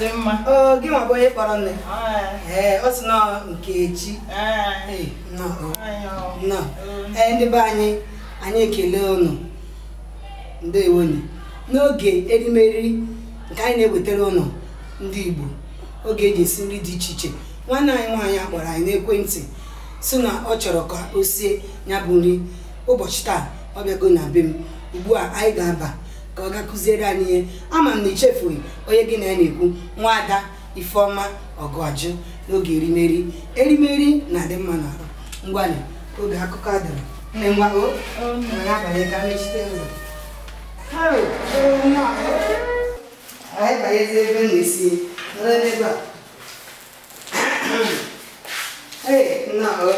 dị mma gị nwa bụ onye kpọrọ nne ee ọ sị nọ Nkechi ee ndị be anyị anyị ekele unu ndewonye n'oge erimeri nke anyị na-ewetara ụnụ ndị Igbo oge eji esi nri dị iche iche nwanne anyị nwaanyị akpọrọ anyị n'ekwentị si na ọ chọrọ ka o sie ya bụ nri ụbọchị taa ọ bịago na be m ugbu a anyị ga-aba ka ọ ga kụziere anyị ihe ama m na ichefughị onye gị na ya na-ekwu nwaada ifeọma ọgọjụ n'oge erimeri erimeri na-adị mma n'ahụ ngwanị oge akụkọ adara nne nwa o nwere abalị ka mechite ụzọ e e, anyị banyezi ebe m na-esi nọrọ n'ebe a ee nna ọ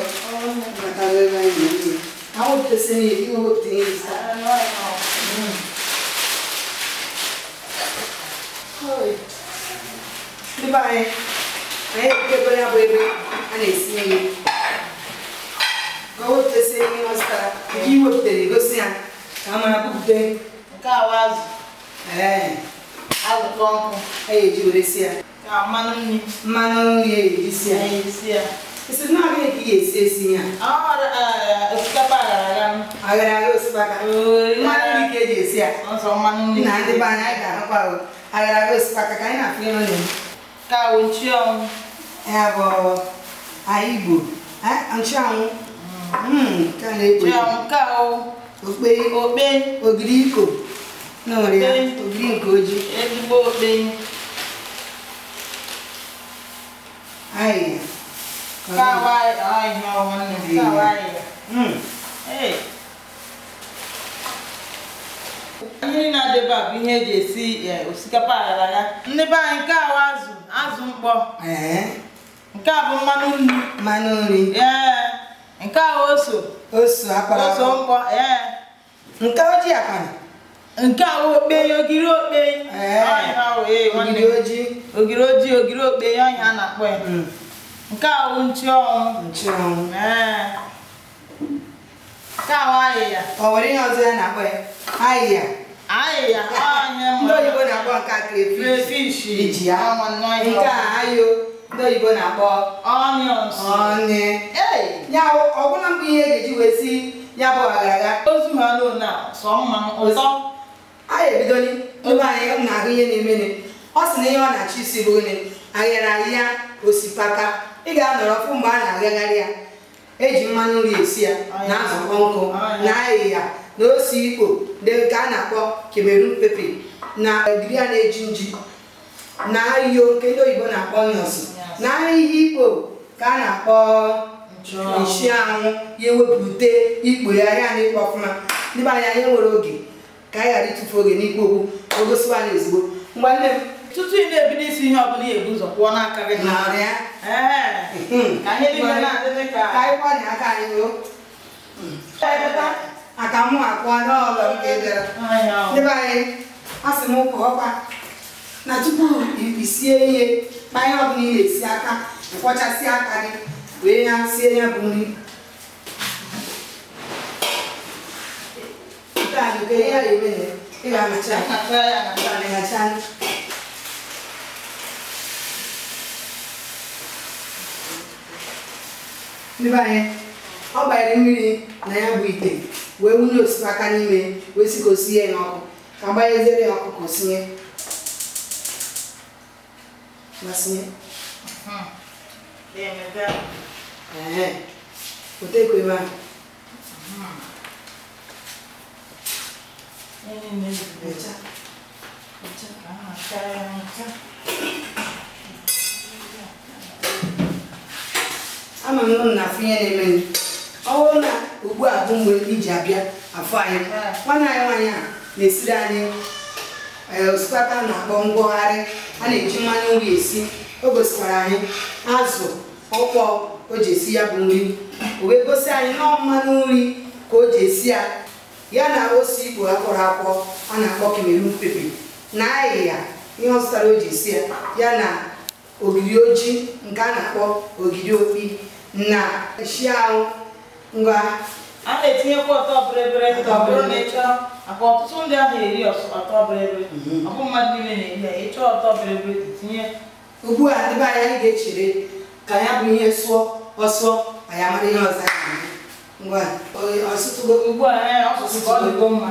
mata ebe anyị na-eji ha wepụtasịrị ya iwe wepụta ihe ibe anyị anyị ekebe ya você está aqui. na-esi nri ka o wepụtasị ihe ọ zụtara nke i wepụtara egosi ya ka a mara bupụta você está aqui. ee azụ kpọọ nkụ a ga-eji were si ya ka mmanụ nri mmanụ nri a ga-eji você está aqui. ya esi na aga ka ị ga-esi esi ya osikapa aghara aghara aghara osikapa mmanụ nri ka você está aqui. na ndị né? be anyị anyị ga-ahụkwa aghara aghara osikapa ka anyị na-afụ ihe ọ na-eme Ka o É ọnwụ. Ya bụ Aigbo. Nchi ọnwụ. Ka na-ekpo. Nchi ọnwụ ka o. grico Okpe. Ogiri iko. N'ọrịa. Ogiri nke oji. Ezigbo okpe. Ayi. Ka wa ahịa ọnwụ nne. Ka ihe na adịba bụ ihe eji esi e, osikapa aghara ya ndị be anyị nke ahụ azụ azụ mkpọ nke a bụ mmanụ nri mmanụ nri ee nke ahụ oso oso akpara oso mkpọ ee nke ojii akara nke awa okpei ogiri okpei e, ogiri ojii ogiri ojii ogiri okpei ọnya a na-akpọ ya mm. nke ahụ nchụọnwụ nchụọnwụ ee Ọ nwere ihe ọzọ ya na-akpọ ya ahịhịa ndị oyibo na-akpọ nke a iji nke a ayo ndị oyibo na-akpọ ọbụla ihe ga-eji wee si ya bụ aghara ebidoli anyị na-ahụ ihe na-emene ọ sị na ihe ọ na achị isi bụ nri aghara ị ga-anọrọ mgbe a na-aghagharị ya eji mmanụ nri esi ya na-azụkọ nkụ na-ayị na ose ikpo nke a na-akpọ kemerun pepe na ogiri a na-eji nji na ahịhịa nke ndị oyibo na-akpọ nọsi na ahịhịa ikpo ka a na-akpọ isi anwụ ya ewepụte ikpo ya ahịa na ikpo ọfụma ndị be anyị anyị nwere oge ka anyị ghara ịtụfu oge n'ikpo okwu o gosiwa anyị ozugbo m tutu ị na-ebido isi ihe ọbụla ihe ebu ụzọ kwụọ n'aka gị hmm. aka hmm. mụ akpụọ n'ọlọ nke bịara anyị asị m ọkwa na tupu isie ihe kpa ihe ọbụla ị na-esi aka kwọchasị aka gị wee ya sie ya bụ nri ị ga-amacha ya anyị ọ gbanyere mmiri na ya bụ ite wee wunye osipaka n'ime wee sikosie ya ọkụ ka gbanyezere hmm. ya ọkụ ka osinye masinye otekwe ebe ahụ Thank you. ama m na afọ ihe na-eme ọ bụrụ na ugbu a bụ mgbe iji abịa afọ anyị nwanne anyị nwanyị a na-esiri anyị e, osikapa na-akpọ ngwagharị a na-eji mmanụ nri esi o gosikwara anyị azụ ọkpọ o ji esi ya bụ nri o wee gosi anyị nọọ mmanụ nri ka o ji esi ya ya na ose igbo akpọrọ akpọ a na-akpọ kemeru pepe na ahịhịa ihe ọzụtara o ji esi ya ya na ogiri ojii nke a na-akpọ ogiri okpi na esi ahụ ngwa a na-etinyekwa ọtọ bịrịbịrị ọ bụrụ na ịchọọ maka ọtụtụ ndị ahụ eri ọtọ bịrịbịrị mhm. ọ bụ mmadụ niile na-eri ya ịchọọ ọtọ bịrịbịrị tinye ugbu a ndị be anyị anyị ga-echere ka ya bụ ihe sụọ ọsụọ anyị amara ihe ọzọ ngwa ọsụtụgo ugbu a ọ sụtụgo mma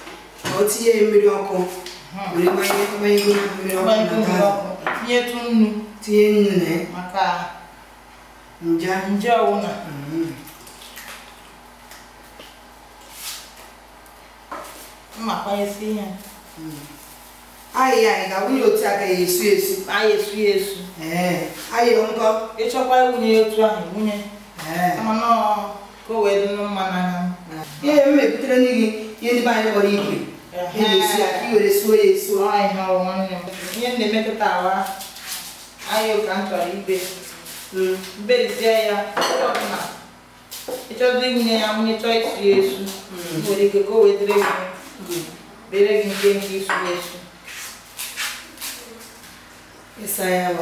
otinye mmiri ọkụ were gbanye mmiri ọkụ tinyetu nnu tinye nnu na maka nje nje ọwụna mmakwanyesi ihe ayị anyị ga-awụnye otu a ka ya esu esu anyị esu ya esu ayị nkọ ịchọkwa ịwụnye otu ahụ wụnye mana ka o wee dị mma n'anya eh. ihe m mebutere gị ihe ndị be anyị kpọrọ ikwe esi aka iwere ihe na-emetụta awa ahụ ka m chọrọ ibe berizie ya ọbụla ịchọzi nye ya nwunye chọọ isi ya esu nwere ike ka o wedere gị bere gị nke nke isu ya esu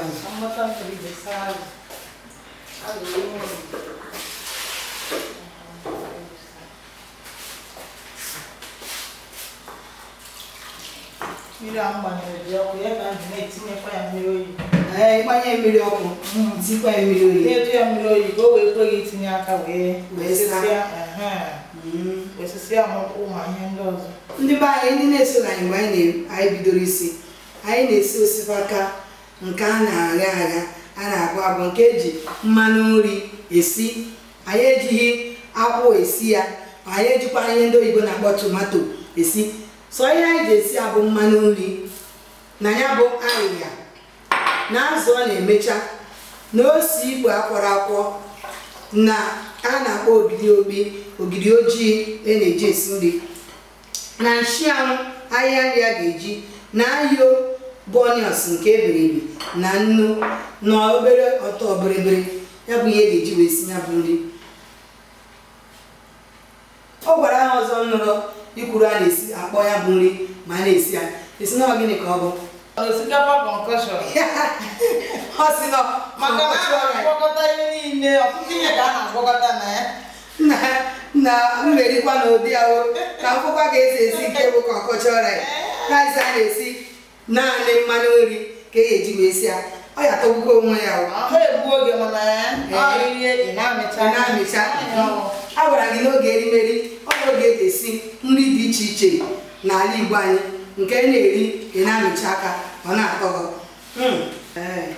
ịsa mmiri ahụ gbanyere dị ọkụ ya ka m ji na-etinyekwa ya mmiri oyi ee ịgbanye mmiri ọkụ mm, tikwa ya mmiri oyi na-edu ya mmiri oyi ka o wee kwe gị itinye aka wee osisi mm. ụmụ ma ihe ndị ọzọ ndị be anyị ndị na-eso na anyị mgbe anyị bidoro isi anyị na-esi osikapa nke a na-agha agha a na-agwọ agwọ nke eji mmanụ nri esi anyị ejighị akwụ esi ya anyị ejikwa ihe ndị oyibo na-akpọ tomato esi sọ ihe anyị ga-esi abụ mmanụ nri na ya bụ ahịhịa na azụ ọ na-emecha na ose igwe akwọrọ akwọ na a na-akpọ ogidi obi ogidi ojii e na-eji esi nri na nshianwụ ahịa nri a ga-eji na ayo bonios nke ebiribi na nnu na obere ọtọ biribiri ya bụ ihe ga-eji wee si ya bụ nri ọ gwara ha ọzọ nụrụ ikwuru a na-esi akpọ ya bụ nri ma a na-esi ya esi na gịnị ka ọ bụ osikapa ọ sị maka na a na-agwakọta ihe niile ọtụtụ ihe ka na na ya na na ka ga-esi esi nke bụ kọnkọshọn ya a na-esi naanị mmanụ nri ka e ji wee si ọ ya tọgbukwa onwe ya a gwara gị n'oge anyị oge eji esi nri dị iche iche n'ala Igbo anyị nke na-eri ị na-amịcha aka ọ na-atọ hmm. na ya?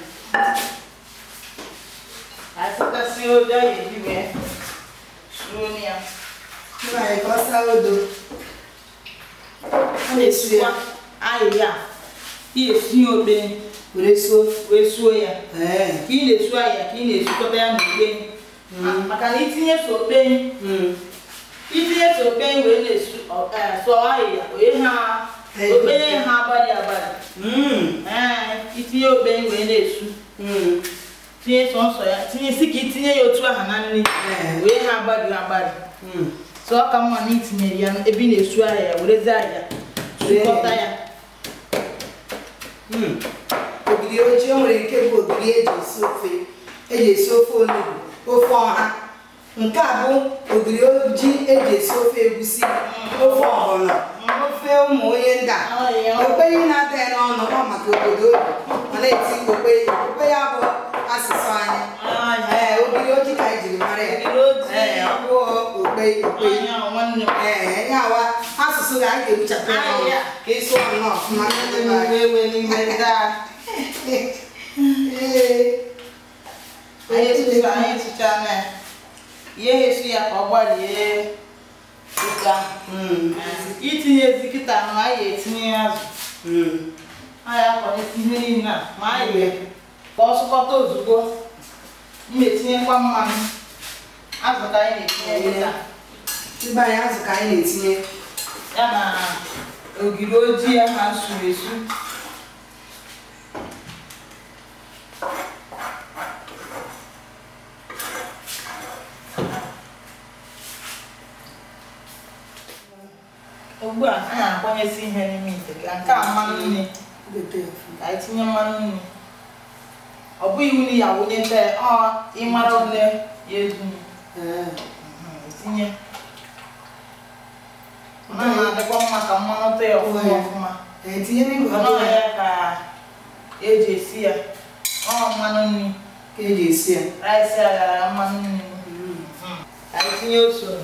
okpe were suo ya ị na-esu ahịa ka ị na-esukọta ya na hmm. maka na itinye okpe hmm. itinye tope wee na-esu e, sụọ ahịhịa onye ha okpenye ha abalị abalị hmm. e, itinye okpenye wee na-esu hmm. tinye sọnsọ ya tinye si ka itinye ya otu aha na nri e. wee ha agbari agbari hmm. sọ ka mma na itinyere ya ebe na-esu ahịa werezi ahịa sukọta ya nwere ike bụ eji esi ofe eji ofe ọha nke a bụ ogiri oji eji esi ofe egusi ofe ọgbọnọ ofe ụmụ onye nda okpere na-ata ya n'ọnụ ọ maka obodo ma na-eti okpere okpere ya bụ asụsụ anyị ee ogiri oji ka ejiri mara ya ọ bụ okpere okpere ee ya wa asụsụ ga anyị ga-ebuchapụ ya ka esi ọnụ ọfụma ee anyị tụchara anyị tụchara ihe ya ka ọ gbarie ụka hmm, itinyezi kịta ma a ya etinye azụ anyị hmm. akọrịta ihe niile a ma anyị ya ka ọ sụkọta ozugbo m etinyekwa mmanụ azụ ka anyị na-etinye kịta ibe anyị azụ ka anyị na-etinye ya na ogiri ojii ya na nsuru esu ugbu a a na-akwanyezi ihe n'ime ite ka nke a mmanụ nri ka anyị tinye mmanụ nri ọ bụghị iwu na ya wụnyeta ọ ịmara ole ya edu mhm, e tinye ọ na-adịkwa mma ka mmanụ tọ ya ọfụma ọfụma e ọnọghị ya ka eji esi ya ọ mmanụ nri ka eji esi ya rice ya gara mmanụ nri mm. ka anyị tinye osoro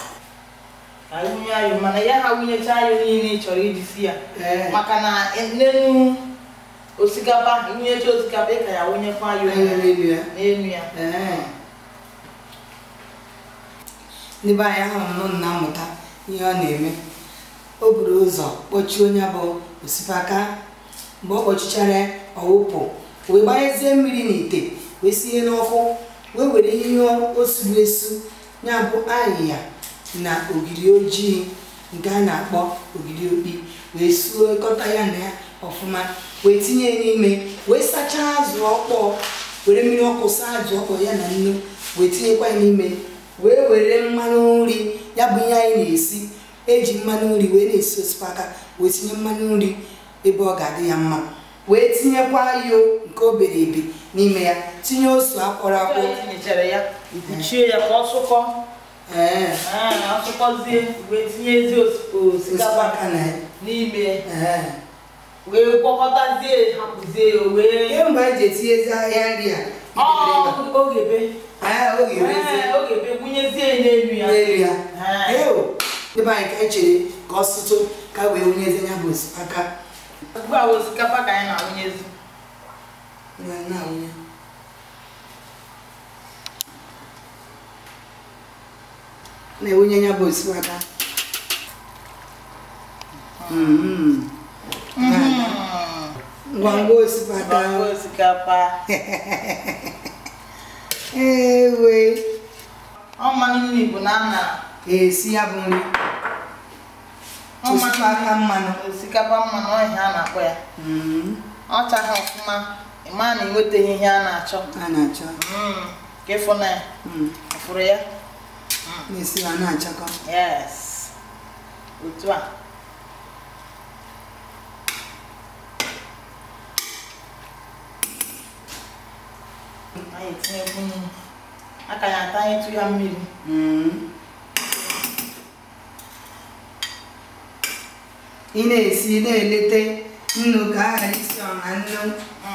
awụnye ayo mana ya ha wụnyecha ayo eh, niile ị chọrọ iji si ya maka na n'elu osikapa wụnyecha osikapa ka ya wụnyekwa ayo n'elu ya n'ebe anyị ahụrụ nụ na mmụta ihe ọ na-eme o buru ụzọ kpọchie onye bụ osikapa mgbe ọ kpọchichara ọwụpụ wee gbanyezie mmiri n'ite wee sie n'ọkụ wee were ihe o suru esu ya bụ ahịhịa na ogiri ojii nke a na-akpọ ogiri okpi wee suekọta ya na ya ọfụma wee tinye n'ime wee sachaa azụ ọkpọọ were mmiri ọkụ saa azụ ya na nnu wee tinyekwa ya n'ime wee were mmanụ nri ya bụ ihe anyị na-esi eji mmanụ nri wee na-esi osipaka wee tinye mmanụ nri ebe ọ ga-adị ya mma wee tinyekwa ayo nke obere ebe n'ime ya tinye osu akwọrọ akwọ asụkọzie wee tinye ezi osikapa n'ime wee gwakọtazie hapụzie wee mgbe eji etinye ezi ahịa nri a ogebe ogebe gwunyezie n'elu ya n'elu ya ebe anyị ka echere ka ọsụtụ ka e wee wunyezie ya bụ osikapa ugbu a osikapa ka anyị na-awụnyezi na-awụnye na-ewunye ya bụ osikapa ngwangwa osikapa ewe ọmanụ na ana esi ya bụ nri osikapa mmanụ osikapa mmanụ ọhịa a na-akpọ ya mm-hmm. ọ chaghị ọfụma ịma na enwetaghị ihe a na-achọ a na-achọ mm. ka ịfụ na ya mm. fụrụ ya na-esi ya na-achakọ yes otu a anyị etinyekwu nnu aka ya atanyetụ ya mmiri mm-hmm. ị na-esi na eleta nnu ka a ghara isi ọha nnu mm.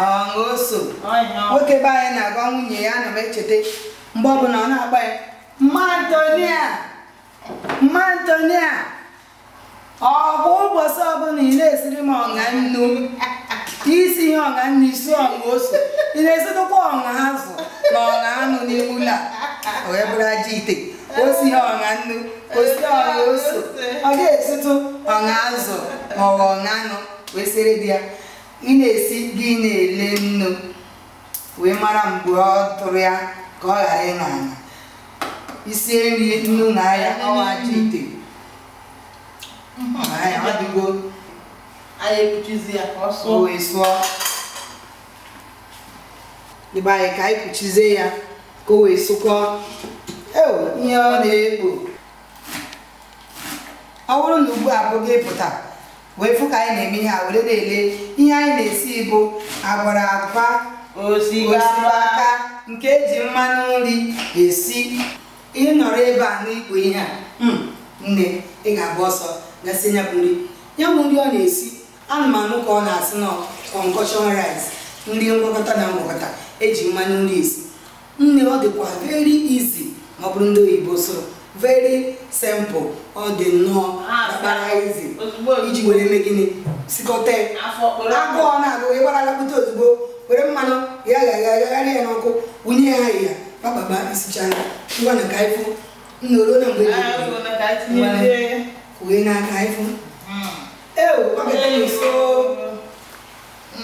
ọ oso nwoke be na-agwa nwunye ya ana m echeta mgbe ọbụla ọ na-agba ya mmantonịa mmantonịa ọ bụ ụbọchị ọbụla ị na-esiri m ọṅa nnu isi ihe ọṅa nnu isi ọṅa ose ị na esitụkwa ọṅa azụ na ọṅa anụ n'ime ụlọ a wee bụrụ aja ite osi ihe ọṅa nnu osi ọṅa ose ọ ga-esitụ ọṅa azụ ma ọ bụ anụ wee sere di ya ị na-esi gị na-ele nnu wee mara mgbe ọ tụrụ ya ka ọ ghara ịnọ anya isi nri nnu na ahịa ọwa aja ite hmm. ahịa ọ anyị ka o wee sụọ ịgba anyị ka anyị kpuchizie ya ka o wee sụkọọ eo ihe ọ na-ekpo ọ bụrụ na ugbu a abụghị ịpụta wee fụ ka anyị na-eme ihe a were na-ele ihe anyị na-esi bụ agwara agwa osikapa nke eji mmanụ nri esi ị nọrọ ebe a n'ikpo ihe a hmm, nne ị ga agba ọsọ gasị ya bụ nri ya bụ nri ọ na-esi anụmanụ ka ọ na-asị na kọnkọshọn rice nri ngwakọta na ngwakọta eji mmanụ nri esi nne ọ dịkwa veri izi ma ọ bụrụ ndị oyibo soro veri simple ọ dị nnọọ kpara ezi iji were eme gịnị sikọta agụọ na-agụ ịgbara alapụta ozugbo were mmanụ ya ga-agagharị ya n'ọkụ wunye ya ahịhịa kpakpaba isichaa ya na ka anyị fụ na mgbe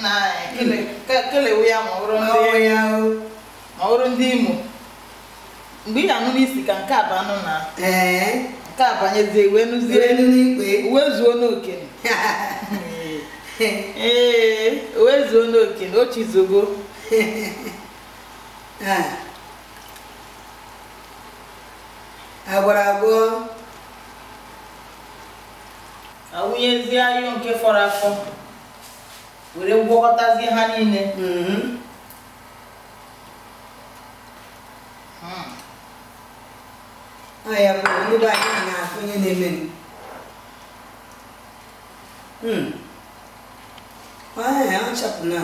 na aka kelewe ya ndị imo mgbe ị na-anụ n'isi ka nke abụ na nke abanyezie wee nụzie n'ikpe zuo ee zuo agwọrọ agwọ awụnyezie ayụ nke fọrọ afọ were gwọkọtazie ha niile mhm. hmm. ya bụ ndị be anyị na-akụ ihe na-eme hmm. ọchapụna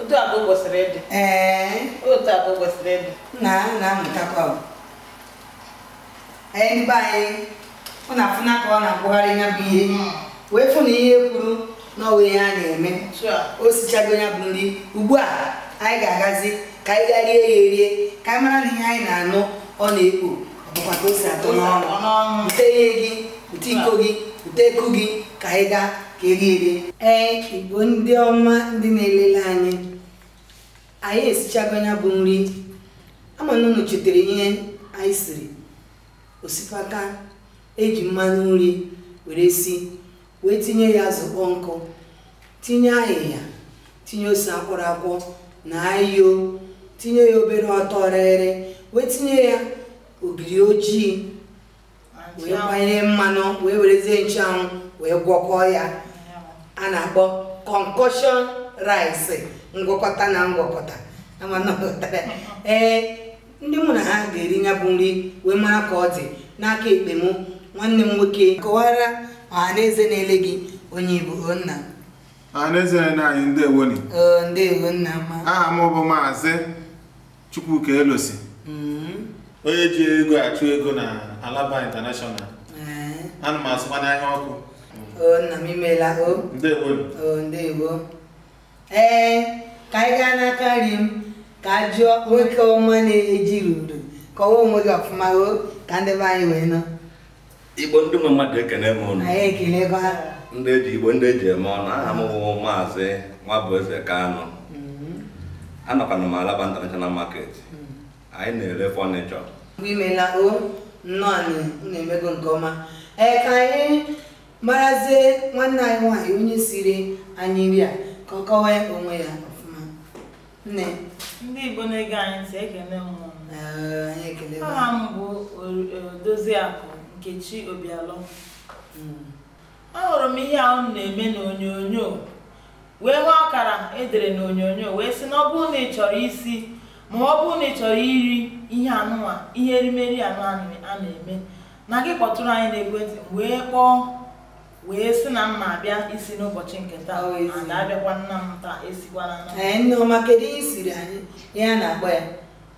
otu abụ kwesịrị ịdị ee otu abụ kwesịrị ịdị na na-amụtakwa anyị ndị be anyị ọ na-afụna ka ọ na-akpụgharị ya bụ ihe hmm. wee fụ na ihe kwuru na ọwa ihe a na-eme o sichago ya bụ nri ugbu a anyị ga-agazi ka anyị gaa rie ya erie ka anyị mara na ihe anyị na-anụ ọ na-ekpo ọ bụkwa ka o si atọ n'ọnụ Ute ihe gị bute iko gị bute eku gị ka anyị gaa ka erie erie ee igbo ndị ọma ndị na-elele anyị anyị esichago ya bụ nri ama na ihe anyị siri osikpaka eji mmanụ nri were si wee tinye ya zụkpọ nkụ tinye ahịhịa tinye ose akwọrọakwọ na ayo tinye ya obere ọtọ rịrị wee tinye ya ogiri ojii wee gbanye mmanụ wee werezie nchuanwụ wee gwọkọọ ya a na-akpọ concoction rice ngwakọta na ngwakọta ee ndị mụ na ha ga-eri nya bụ nri wee mara ka ọ dị n'aka ekpe mụ nwanne m nwoke kọwara ọhanaeze na-ele eze na gị onye Igbo nna ọhanaeze na anyị ndewo ni ndewo nna ma aha m bụ maazị Chukwuka Elosi mm-hmm. onye ji ego achụ ego na Alaba International eh. ana m azụkwa n'ahịa ọkụ nna m imeela o ndewo ndewo eh, ee ka anyị gaa n'aka nri m ka a jụọ nwoke ọma na-ejiri udo kọwaa onwe gị ọfụma ka ndị be anyị wee nọ igbo ndị nwe mmadụ ekene m ụnụ anyị ekelego ha ndị eji igbo ndị eji eme ọnụ aha m bụ maazị Nwabueze Kanu mm-hmm. anọkwana m Alaba international market mm-hmm. anyị na-ere fọnịchọ mgbe imela o nnọọ na-emego nke ọma ee ka anyị marazie nwanne anyị nwaanyị onye siri anyị nri a ka ọ kọwaa onwe ya nne ndị igbo na-ege anyị ntị ekele mmụọ aha m bụ doziakụ nkechi obialọ hmm. ahụrụ m ihe ahụ na-eme n'onyonyo wee hụ akara edere n'onyonyo wee sị na ọ bụrụ na ị chọrọ isi ma ọ bụrụ na ị chọrọ iri ihe anụnwa ihe erimeri anụ a na-eme na gị kpọtụrụ anyị na-ekwentị wee kpọọ wee sị na mma abịa isi n'ụbọchị nke taa oh, abịakwa nna m taa esikwana nneọma eh, kedu ihe siri anyị ihe a na-agba ya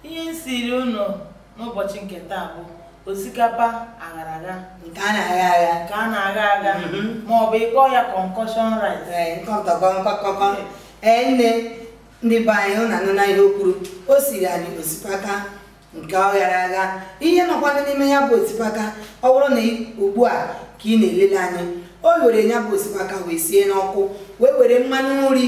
ihe siri ụnụ n'ụbọchị nke taa bụ osikapa aghara agha nke a na-agha agha nke a na-agha agha mm-hmm. ma ọ bụ ịkpọ ya kọnkọshọn rice ee eh, eh, nne ndị be anyị hụ na nụ na ihe o o siri anyị osikapa nke ọghara agha ihe nọkwana n'ime ya bụ osikapa ọ bụrụ na ugbu a ka ị na-elele anyị o were ya bụ wee sie n'ọkụ wee were mmanụ nri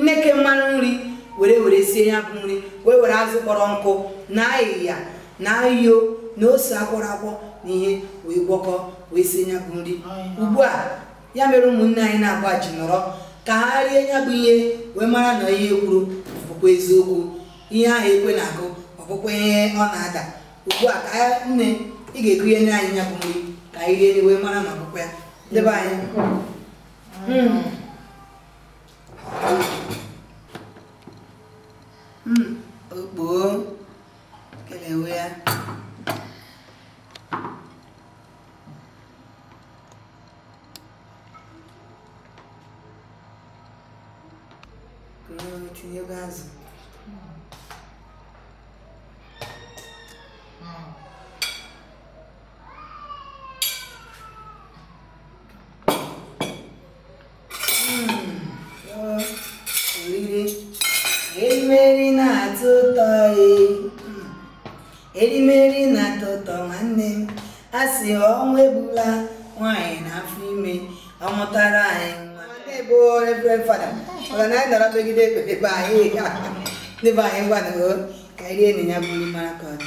nneke mmanụ nri were were sie ya bụ nri wee were azụ kpọrọ nkụ na ahịhịa na yo na ose akwọrọ akwọ na ihe wee gwọkọ wee sie ya bụ nri ugbu a ya mere ụmụnne anyị na-agba ji nọrọ ka ha rie ya bụ ihe wee mara na ihe kwuru bụkwa eziokwu ihe ahụ ekwe na-agụ ọbụkwa ihe ọ na-ada ugbu a ka nne ị ga-ekunye anyị ya bụ nri ka anyị rie wee mara na ọbụkwa ya de banho. Hum. Hum. Bom. Que leuia. Tinha o gaso. dudek baik ni baik buat aku kayak dia ni nyabu lima kon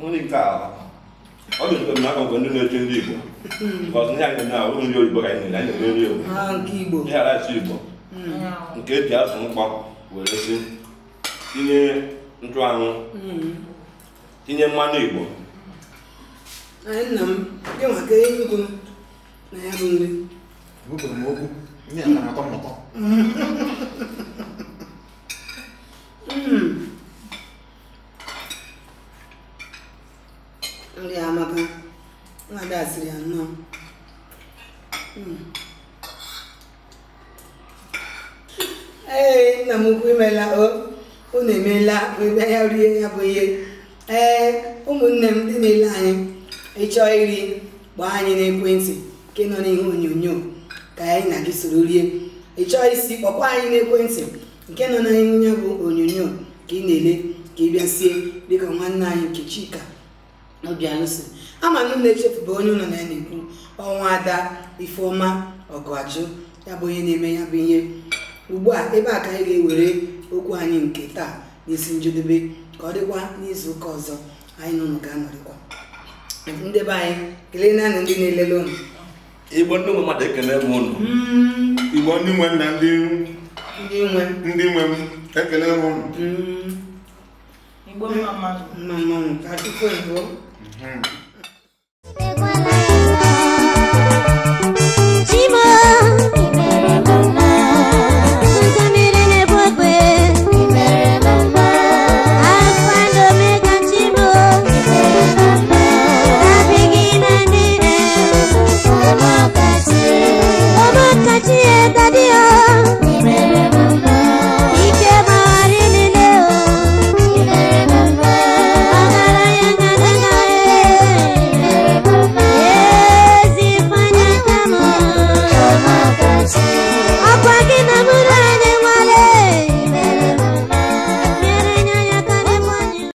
nó đi cả có được cần nó còn vấn đề trên gì bộ có những anh cần nào cũng nhiều bộ cái này Anh được nhiều khi bộ nhà lại gì bộ kế tiếp sống bọc vừa đấy xin tin nhé anh trang ừ. tin nhé mani bộ anyị nna m gị maka Enugu na ya bụ nri gwụpụrụ m okwu ndị a na-atọ mụtọ hmm. nri amaka nwa ada siri ya nnọọ hmm. ee nna m ukwu imela o unu emeela ebe ya rie ya bụ ihe ee ụmụnne m dị na-ele anyị ịchọ iri gbaa anyị n'ekwentị nke nọ n'ihe onyonyo ka anyị na gị soro rie ịchọ isi kpọkwa anyị n'ekwentị nke nọ n'ihe ya bụ onyonyo ka ị na-ele ka ị bịasie dịka nwanne anyị nke Chika Obianusi ama na ụlọ echefuba onye ụlọ na ya na-ekwu ọnwa ada Ifeọma Ọgụajụ ya bụ onye na-eme ya bụ ihe ugbu a ebe a ka anyị ga-ewere okwu anyị nke taa n'isi njedebe ka ọ dịkwa n'izu ụka ọzọ anyị nụnụ ga-anọrịkwa ndị be anyị kelee naanị ndị na-elele ụnụ igbo ndị nwe mmadụ ekele m ụnụ hmm. igbo ndị nwe na ndị nwe ndị nwe m ekele m ụnụ hmm. igbo mma mmanwụ ka chukwu ebuo mhm.